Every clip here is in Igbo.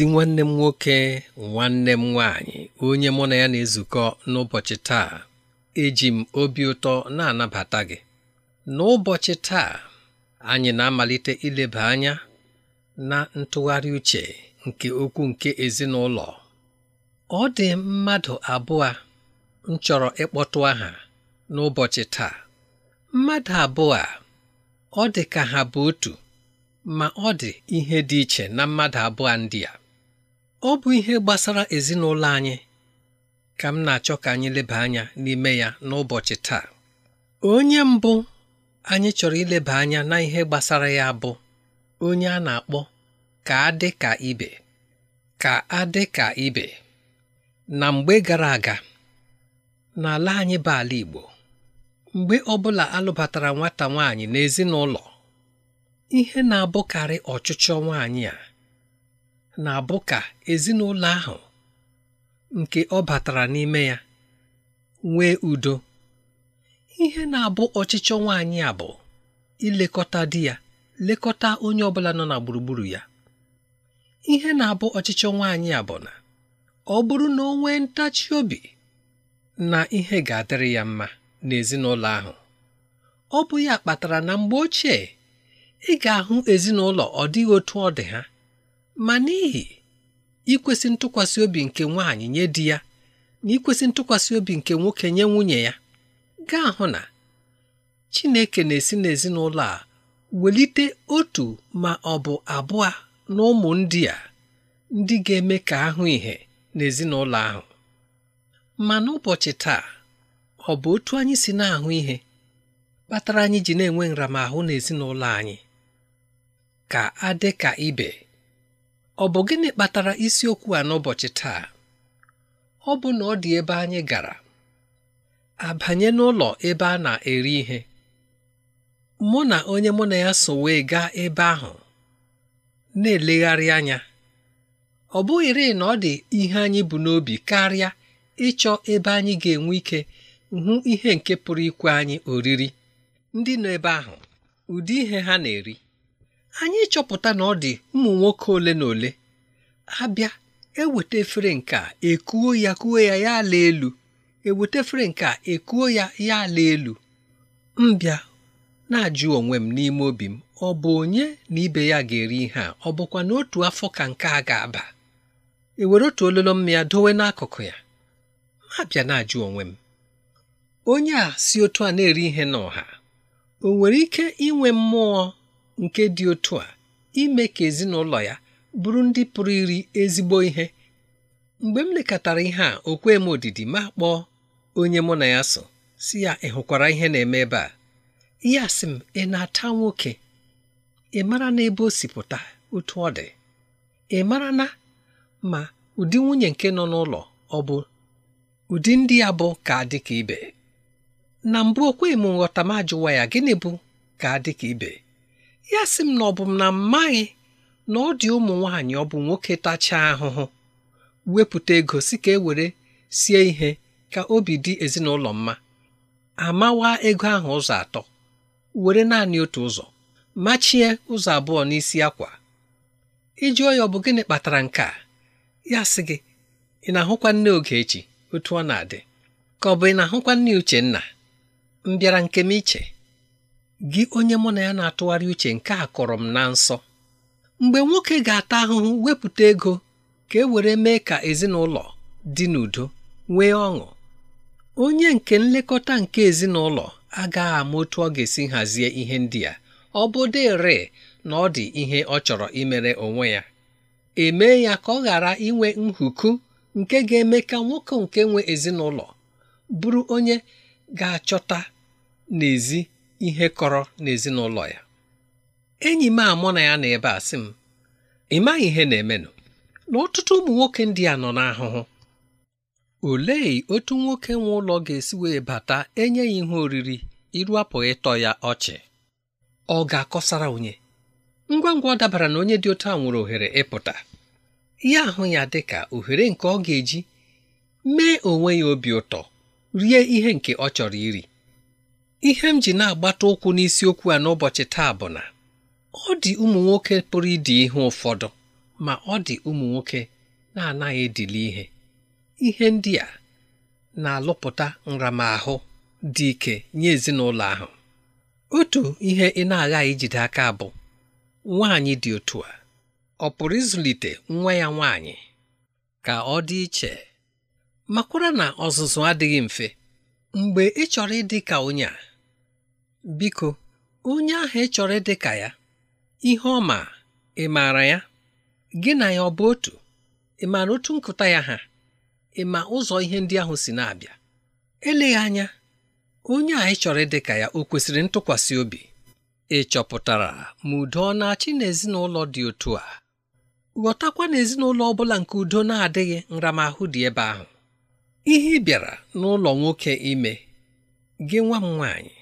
ezi nwanne m nwoke nwanne m nwaanyị onye mụ na ya na-ezukọ n'ụbọchị taa eji m obi ụtọ na-anabata gị n'ụbọchị taa anyị na-amalite ileba anya na ntụgharị uche nke okwu nke ezinụlọ ọ dị mmadụ abụọ m chọrọ ịkpọtụ aha n'ụbọchị taa mmadụ abụọ ọ dị ka ha bụ otu ma ọ dị ihe dị iche na mmadụ abụọ ndị a ọ bụ ihe gbasara ezinụlọ anyị ka m na-achọ ka anyị leba anya n'ime ya n'ụbọchị taa onye mbụ anyị chọrọ ileba anya na ihe gbasara ya bụ onye a na-akpọ ka adị ka ibe ka adị ka ibe na mgbe gara aga n'ala anyị bụ ala Igbo mgbe ọbụla alụbatara nwata nwaanyị n'ezinụlọ ihe na-abụkarị ọchịchọ nwaanyị a na-abụ ka ezinụlọ ahụ nke ọ batara n'ime ya nwee udo ihe na-abụ ọchịchọ nwaanyị a bụ ilekọta di ya lekọta onye ọbụla nọ na gburugburu ya ihe na-abụ ọchịchọ nwaanyị a bụ na ọ bụrụ na o nwee ntachi obi na ihe ga-adịrị ya mma n'ezinụlọ ahụ ọ bụ ya kpatara na mgbe ochie ị ga-ahụ ezinụlọ ọ dịghị otu ọ dị ha ma n'ihi ikwesị ntụkwasị obi nke nwaanyị nye di ya na ikwesị ntụkwasị obi nke nwoke nye nwunye ya gaa hụ na Chineke na-esi n'ezinụlọ a welite otu ma ọ bụ abụọ na ụmụ ndị a ndị ga-eme ka ahụ ihe n'ezinụlọ ahụ ma n'ụbọchị taa ọ bụ otu anyị si na-ahụ ihe kpatara anyị ji na-enwe nramahụ n'ezinụlọ anyị ka adị ka ibe ọ bụ gịnị kpatara isiokwu a n'ụbọchị taa ọ bụ na ọ dị ebe anyị gara abanye n'ụlọ ebe a na-eri ihe mụ na onye mụ na ya so wee gaa ebe ahụ na-elegharị anya ọ bụghịrị na ọ dị ihe anyị bụ n'obi karịa ịchọ ebe anyị ga-enwe ike hụ ihe nke pụrụ ikwe anyị oriri ndị nọ ebe ahụ ụdị ihe ha na-eri anyị chọpụta na ọ dị ụmụ nwoke ole na ole abịa eweta efere nke a ekuo ya kuo ya ya ala elu eweta efere nke a ekuo ya ya ala elu mbịa na-ajụ onwe m n'ime obi m ọ bụ onye na ibe ya ga-eri ihe a ọ bụkwa na otu afọ ka nke a ga-aba ewere otu ololo m ya dowe n'akụkụ ya mabịa na-ajụ onwe m onye a si otu a na-eri ihe n'ọha o nwere ike inwe mmụọ nke dị otu a ime ka ezinụlọ ya bụrụ ndị pụrụ iri ezigbo ihe mgbe m lekọtara ihe a okwe m odidi ma kpọọ onye mụ na ya so si ya ị hụkwara ihe na-eme ebe a ya sị m ị na-ata nwoke ị mara ebe o si pụta otu ọ dị ị mara na ma ụdị nwunye nke nọ n'ụlọ ọ bụ ụdị ndị ya bụ ka dị ka ibe na mbụ okwe m nghọta ma ajụwa ya gịnị bụ ka dị ka ibe ya sị m na ọ bụ m na mmaghị na ọ dị ụmụ nwaanyị ọ bụ nwoke tachaa ahụhụ wepụta ego si ka e were sie ihe ka obi dị ezinụlọ mma amawa ego ahụ ụzọ atọ were naanị otu ụzọ machie ụzọ abụọ n'isi akwa iji ọ bụ gịnị kpatara nke a ya sị gị ị na-ahụkwa nne Ogechi otu ọ na-adị ka ọ bụ ị na-ahụkwa nne Uchenna m bịara nke m iche gị onye mụ na ya na-atụgharị uche nke a kọrọ m na nsọ mgbe nwoke ga-ata ahụhụ wepụta ego ka e were mee ka ezinụlọ dị n'udo nwee ọṅụ onye nke nlekọta nke ezinụlọ agaghị ama otu ọ ga-esi hazie ihe ndị a ọ bụ na ọ dị ihe ọ chọrọ imere onwe ya emee ya ka ọ ghara inwe nhuku nke ga-eme ka nwoke nke nwe ezinụlọ bụrụ onye ga-achọta n'ezi ihe kọrọ n'ezinụlọ ya enyi m amụ na ya na ebe a sị m ị maghị ihe na-emenụ na ọtụtụ ụmụ nwoke ndị a nọ n'ahụhụ olee otu nwoke nwe ụlọ ga-esi wee bata enye ya ihe oriri iru apụ ịtọ ya ọchị ọ ga-akọsara onye ngwa ngwa ọ dabara na onye dị otu a nwere ohere ịpụta ya ahụ ya dị ka ohere nke ọ ga-eji mee onwe ya obi ụtọ rie ihe nke ọ chọrọ iri ihe m ji na-agbata ụkwụ n'isiokwu a n'ụbọchị taa bụ na ọ dị ụmụ nwoke pụrụ ịdị ihe ụfọdụ ma ọ dị ụmụ nwoke na-anaghị edili ihe ihe ndị a na-alụpụta nramahụ dị ike nye ezinụlọ ahụ otu ihe ị na-aghaghị ijide aka bụ nwaanyị dị otu a ọ pụrụ ịzụlite nwa ya nwaanyị ka ọ dị iche makwara na ọzụzụ adịghị mfe mgbe ị chọrọ ịdị ka onye a biko onye ahụ ị chọrọ ịdị ka ya ihe ọ ma ị maara ya gị na ya ọ bụ otu ị maara otu nkụta ya ha ị ma ụzọ ihe ndị ahụ si na-abịa eleghị anya onye a ị chọrọ ịdị ka ya o kwesịrị ntụkwasị obi ị chọpụtara ma udo ọ na-achị n'ezinụlọ dị otu a ghọtakwa na ezinụlọ ọ bụla nke udo na-adịghị nramahụ dị ebe ahụ ihe ị bịara n'ụlọ nwoke ime gị nwa m nwaanyị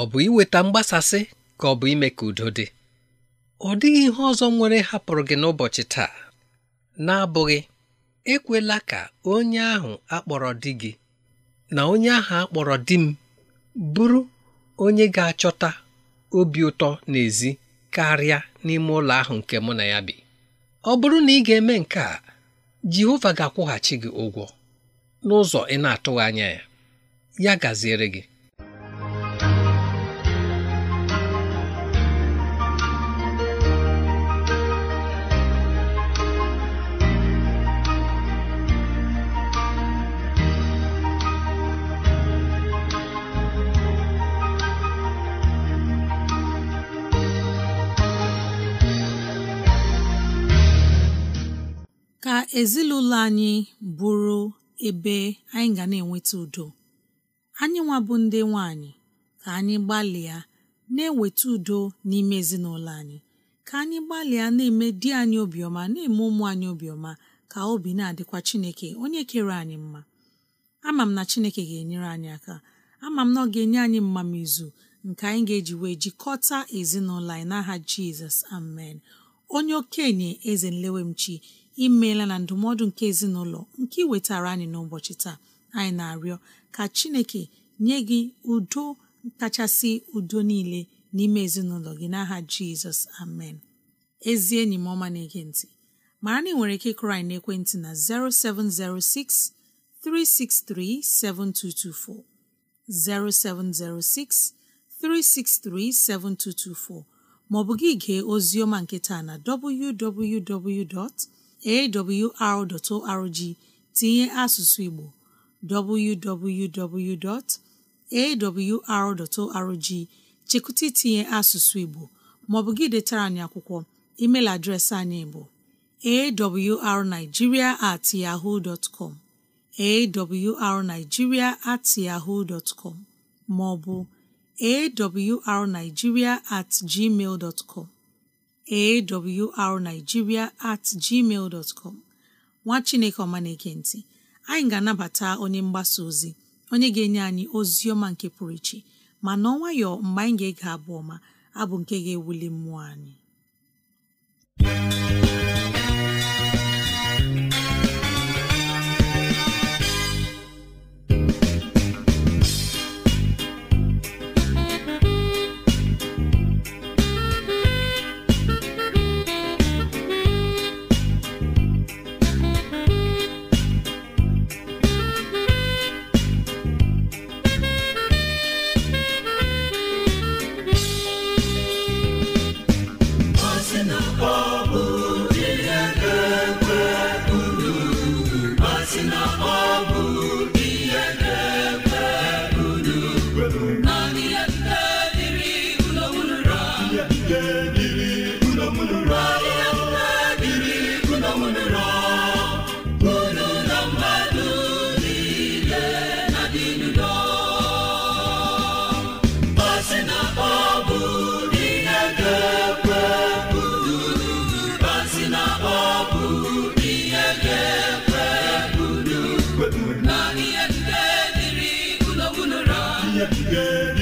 ọ bụ iweta mgbasasị ka ọ bụ ime ka udo dị ọ dịghị ihe ọzọ nwere hapụrụ gị n'ụbọchị taa na-abụghị ekwela ka onye ahụ akpọrọ di gị na onye ahụ akpọrọ di m bụrụ onye ga-achọta obi ụtọ n'ezi karịa n'ime ụlọ ahụ nke mụ na ya bi ọ bụrụ na ị ga-eme nke a Jehova ga-akwụghachi gị ụgwọ n'ụzọ ị na-atụghị anya ya ya gaziere gị ezinụlọ anyị bụrụ ebe anyị ga na-enweta udo anyị nwa bụ ndị nwanyị ka anyị gbalịa na-eweta udo n'ime ezinụlọ anyị ka anyị gbalịa na-eme di anyị obiọma na-eme ụmụ anyị obiọma ka obi na-adịkwa Chineke onye kere anyị mma ama m na Chineke ga-enyere anyị aka ama m na ọ ga-enye anyị mmamizu nke anyị ga-eji wee jikọta ezinụlọ anyị n'aha Jizọs amen onye okenye eze nlewemchi imeela na ndụmọdụ nke ezinụlọ nke ị wetara anyị n'ụbọchị taa anyị na-arịọ ka chineke nye gị udo kachasị udo niile n'ime ezinụlọ gị n'aha jizọs amen ezi enyi m ọma na-ege ntị mara na ị nwere ike ịkụrụ anyị na 0706 363 7224 0706 363 7224 maọbụ gị gee ozi ọma na www. awr.org tinye asụsụ Igbo www.awr.org chekụta itinye asụsụ Igbo maọbụ gị detara anyị akwụkwọ email adreesị anyị bụ awrnigeria at yaho com awrnigeria at yahoo dot com maọbụ awrnigeria at gmail com awrnigeria at gmail dot com nwa chineke ọma na anyị ga-anabata onye mgbasa ozi onye ga-enye anyị ozi ọma nke pụrụ iche ma nọ nwayọọ mgbe anyị ga-ege abụ ọma abụ nke ga-ewuli mmụọ anyị yet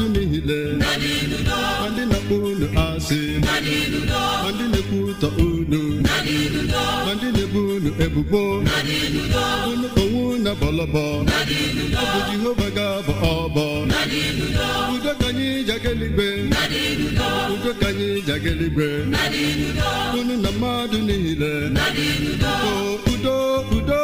niile ndị na-akpọ unu asị ma ndị na-ekwu ụtọ unu ma ndị na-ebu unu ebubo unu onwe na bọlọbọ bụ Jehova ga-abọ ọbọ udo ka anyị jageligbe udo ka anyị jageligbe unu na mmadụ niile udo udo udo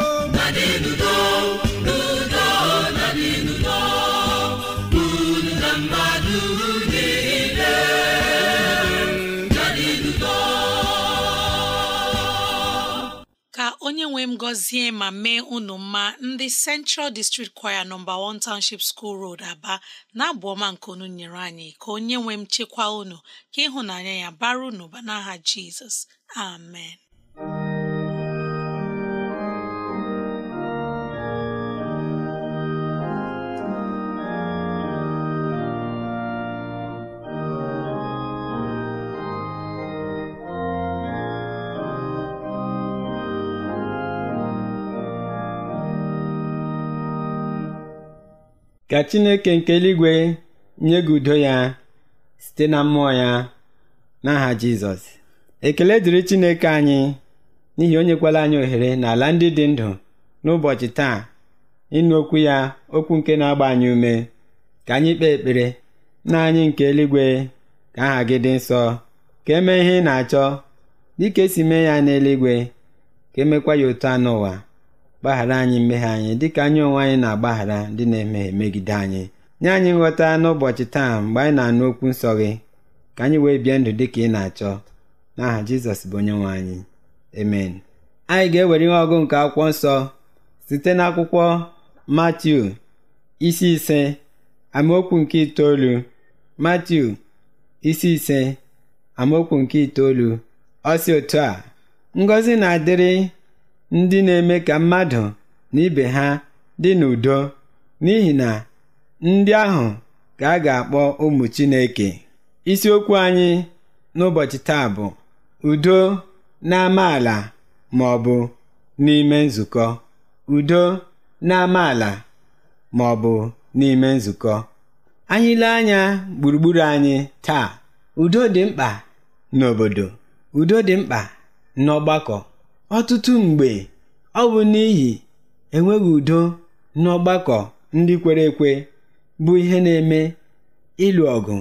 nwe m gọzie ma mee unu mma ndị Central District Choir nọmba 1 Township School Road Aba na-abụ ọma nke unu nyere anyị ka onye nwe m chekwa unu ka ịhụnanya ya bara unu ba n'aha Jizọs amen ka chineke nke eluigwe nye gị udo ya site na mmụọ ya n'aha jizọs ekele dịrị chineke anyị n'ihi onyekwala anyị ohere n'ala ndị dị ndụ n'ụbọchị taa ịnụ okwu ya okwu nke na-agba anyị ume ka anyị kpee ekpere na anyị nke eluigwe ka aha gị dị nsọ ka emee ihe ị na-achọ dịka esi mee ya n'eluigwe ka emekwa ya otu anụ n'ụwa gbaghara anyị mmehie anyị dịka anyị onwe anyị na-agbaghara ndị na-emehie megide anyị nye anyị nghọta n'ụbọchị taa mgbe anyị na-anụ okwu nsọ gị ka anyị wee bie ndụ dịka ị na-achọ n'aha Jizọs bụ onye nwe anyị amen anyị ga-ewere ihe ọgụ nke akwụkwọ nsọ site n'akwụkwọ Matiu isi ise amaokwu nke itoolu Matiu isi ise amaokwu nke itoolu ọ si otu a ngọzi na-adịrị ndị na-eme ka mmadụ na ibe ha dị n'udo n'ihi na ndị ahụ ka a ga-akpọ ụmụ Chineke isiokwu anyị n'ụbọchị taa bụ udo n'amaala ma ọ bụ n'ime nzukọ udo n'amaala ma ọ bụ n'ime nzukọ anyị anya gburugburu anyị taa udo dị mkpa n'obodo udo dị mkpa n'ọgbakọ Ọtụtụ mgbe, ọ bụ n'ihi enweghị udo n'ọgbakọ ndị kwere ekwe bụ ihe na-eme ịlụ ọgụ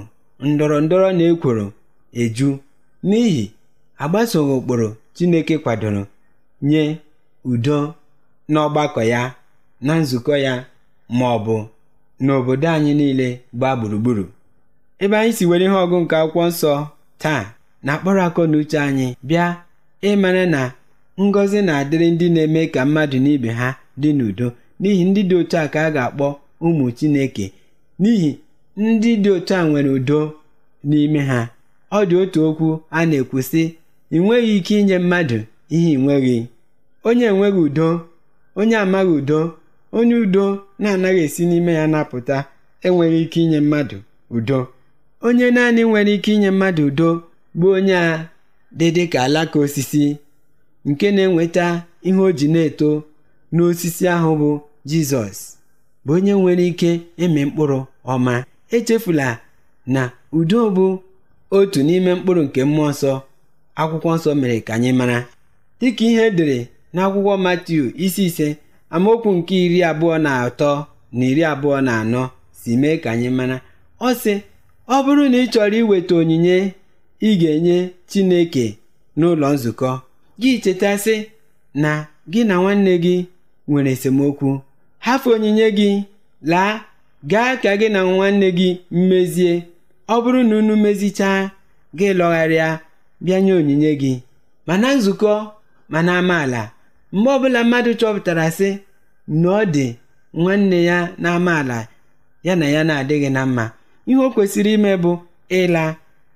ndọrọ ndọrọ na ekworo eju n'ihi agbasoghị ụkpụrụ Chineke kwadoro nye udo n'ọgbakọ ya, na nzukọ ya ma ọ bụ n'obodo anyị niile gbaa gburugburu. Ebe anyị si were ihe ọgụ nke akwụkwọ nsọ taa na-akpọrọ akọ na uche anyị bịa ịmara na ngọzi na-adịrị ndị na-eme ka mmadụ na ibe ha dị n'udo n'ihi ndị dị otu a ka a ga-akpọ ụmụ Chineke n'ihi ndị dị otu a nwere udo n'ime ha ọ dị otu okwu a na-ekwu sị ị nweghị ike inye mmadụ ihe ị nweghị onye enweghị udo onye amaghị udo onye udo na-anaghị esi n'ime ya napụta enweghị ike inye mmadụ udo onye naanị nwere ike inye mmadụ udo bụ onye a dị dịka alaka osisi nke na-enweta ihe o ji na-eto n'osisi ahụ bụ jizọs bụ onye nwere ike ịmị mkpụrụ ọma echefula na udo bụ otu n'ime mkpụrụ nke mmụọ nsọ akwụkwọ nsọ mere ka anyị mara dịka ihe edere n'akwụkwọ Matiu isi ise amaokwu nke iri abụọ na atọ na iri abụọ na anọ si mee ka anyị mara ọ sị ọ bụrụ na ị chọrọ iweta onyinye ị ga-enye Chineke n'ụlọ nzukọ gị chetasị na gị na nwanne gị nwere esemokwu hafe onyinye gị laa gaa ka gị na nwanne gị mmezie ọ bụrụ na unu mezichaa gị lọgharịa bịanye onyinye gị mana nzukọ mana amaala mgbe ọbụla mmadụ chọpụtara sị na ọ dị nwanne ya na amaala ya na ya na-adịghị na mma ihe o kwesịrị ime bụ ịla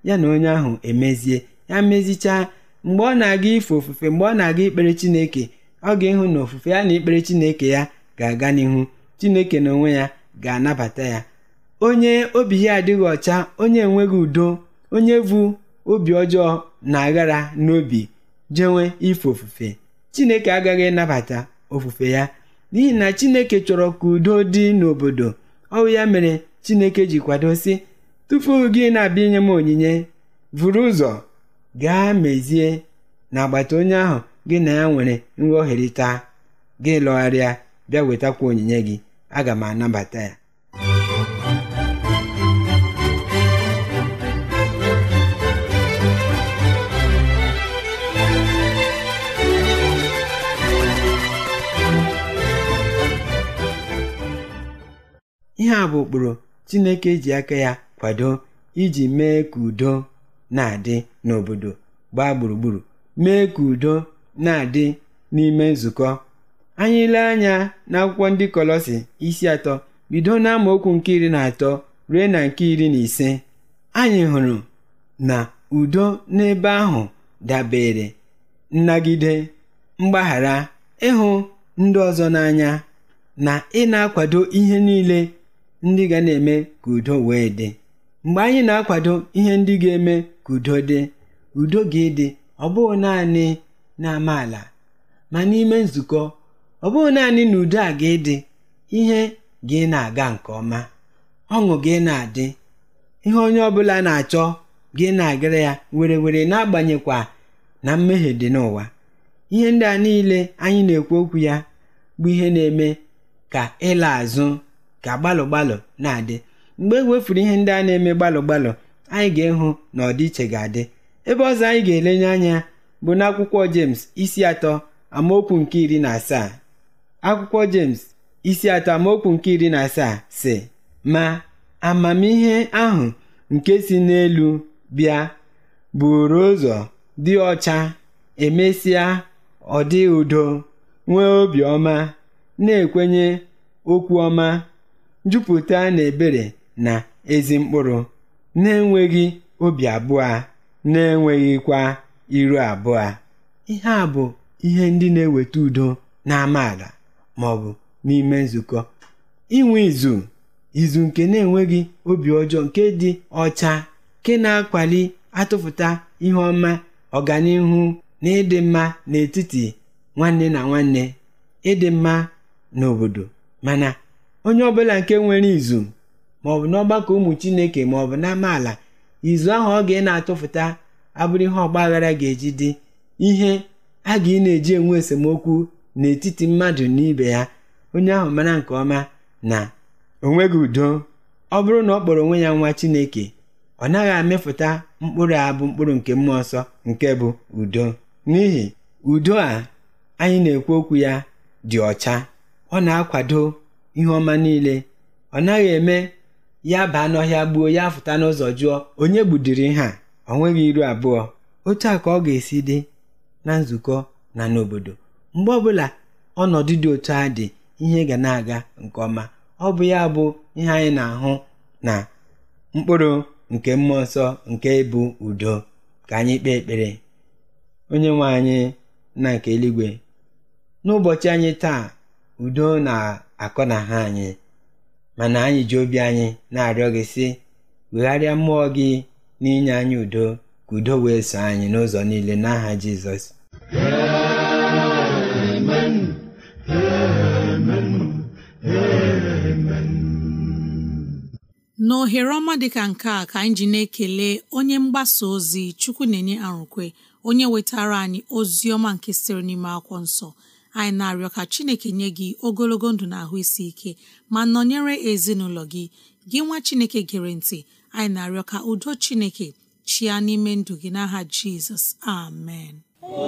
ya na onye ahụ emezie ya mezichaa Mgbe ọ na-aga ife ofufe mgbe ọ na-aga ikpere Chineke, ọ ga-ịhụ na ofufe ya na ikpere Chineke ya ga-aga n'ihu Chineke na onwe ya ga-anabata ya onye obi ya adịghị ọcha onye enweghị udo onye vu obi ọjọọ na-aghara n'obi jenwe ife ofufe Chineke agaghị ịnabata ofufe ya n'ihi na Chineke chọrọ ka udo dị n'obodo ọwụ ya mere Chineke ji kwado sị tupu gị na-abịa inye m onyinye vụrụ ụzọ gaa mezie n'agbata onye ahụ gị na ya nwere nghọherita gị lọgharịa bịa wetakwa onyinye gị aga m anabata ya ihe a bụ ụkpụrụ Chineke ji aka ya kwado iji mee ka udo na-adị n'obodo gbaa gburugburu mee ka udo na-adị n'ime nzukọ anyị lee anya n'akwụkwọ ndị kolosi isi atọ bido n'amaokwu nke iri na atọ ruo na nke iri na ise anyị hụrụ na udo n'ebe ahụ dabere nnagide mgbaghara ịhụ ndị ọzọ n'anya na ị na-akwado ihe niile ndị ga na-eme ka udo wee dị mgbe anyị na-akwado ihe ndị ga-eme ka udo dị udo ga ede ọ bụghị naanị na ama ala ma n'ime nzukọ ọ bụghị naanị na udo a ga ede ihe gị na-aga nke ọma ọṅụ gị na-adị ihe onye ọbụla na-achọ gị na-agara ya were were na-agbanyekwa na mmehie dị n'ụwa ihe ndị a niile anyị na-ekwu okwu ya bụ ihe na-eme ka ịla azụ ka gbalụ na-adị mgbe e wefuru ihe ndị a na-eme gbalụ gbalụ anyị ga-ehụ na ọdịiche ga-adị ebe ọzọ anyị ga-elenye anya bụ na akwụkwọ jems isi atọ amaokwu nke iri na asaa akwụkwọ jems isi atọ amaokwu nke iri na asaa si ma amamihe ahụ nke si n'elu bịa buru ụzọ dị ọcha emesịa ọdị udo nwee obiọma na-ekwenye okwu ọma jupụta na ebere na ezi mkpụrụ, na-enweghị obi abụọ, na-enweghịkwa iru abụọ. Ihe a bụ ihe ndị na-eweta udo n'amaala ma ọ bụ n'ime nzukọ. Inwe izu izu nke na-enweghị obi ọjọọ nke dị ọcha nke na-akwali atụfụta ihe ọma ọganihu na ịdị mma n'etiti nwanne na nwanne ịdị mma n'obodo mana onye ọbụla nke nwere izu maọbụ n'ọgbakọ ụmụ chineke maọbụ n'amaala izu ahụ ọ ga na-atụfụta abụrụ ihe ọgbaghara ga-eji dị ihe a ga ị na-eji enwe esemokwu n'etiti mmadụ na ibe ya onye ahụ mara nke ọma na onweghị udo ọ bụrụ na ọ kpọrọ onwe ya nwa chineke ọ naghị amịfụta mkpụrụ abụ mkpụrụ nke mmụọ nsọ nke bụ udo n'ihi udo a anyị na-ekwu okwu ya dị ọcha ọ na-akwado ihe ọma niile ọ naghị eme ya baa n'ọhịa gbuo ya fụta n'ụzọ jụọ onye gbudiri ha a ọ nweghị iru abụọ otu a ka ọ ga-esi dị na nzukọ na n'obodo mgbe ọbụla ọnọdụ dị otu a dị ihe ga na-aga nke ọma ọ bụ ya bụ ihe anyị na-ahụ na mkpụrụ nke mmụọ nsọ nke bụ udo ka anyị kpee ekpere onye nwe anyị na nke eluigwe n'ụbọchị anyị taa udo na-akọ na ha anyị mana anyị ji obi anyị na-arịọ gị sị wegharịa mmụọ gị n'inye anyị udo ka udo wee so anyị n'ụzọ niile n'aha Jizọs n'ohere ọma dịka nke a ka anyị ji na-ekele onye mgbasa ozi chukwu na-enye arụkwe onye wetara anyị ozi ọma nke sitere n'ime akwụkwọ nsọ anyị na-arịọ ka chineke nye gị ogologo ndụ na ahụ isi ike ma nọnyere ezinụlọ gị gị nwa chineke gere ntị anyị na-arịọ ka udo chineke chịa n'ime ndụ gị n'aha jizọs amen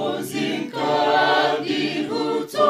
ozi nke dị ụtọ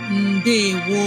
ndewo